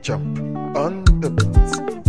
Jump on the beats.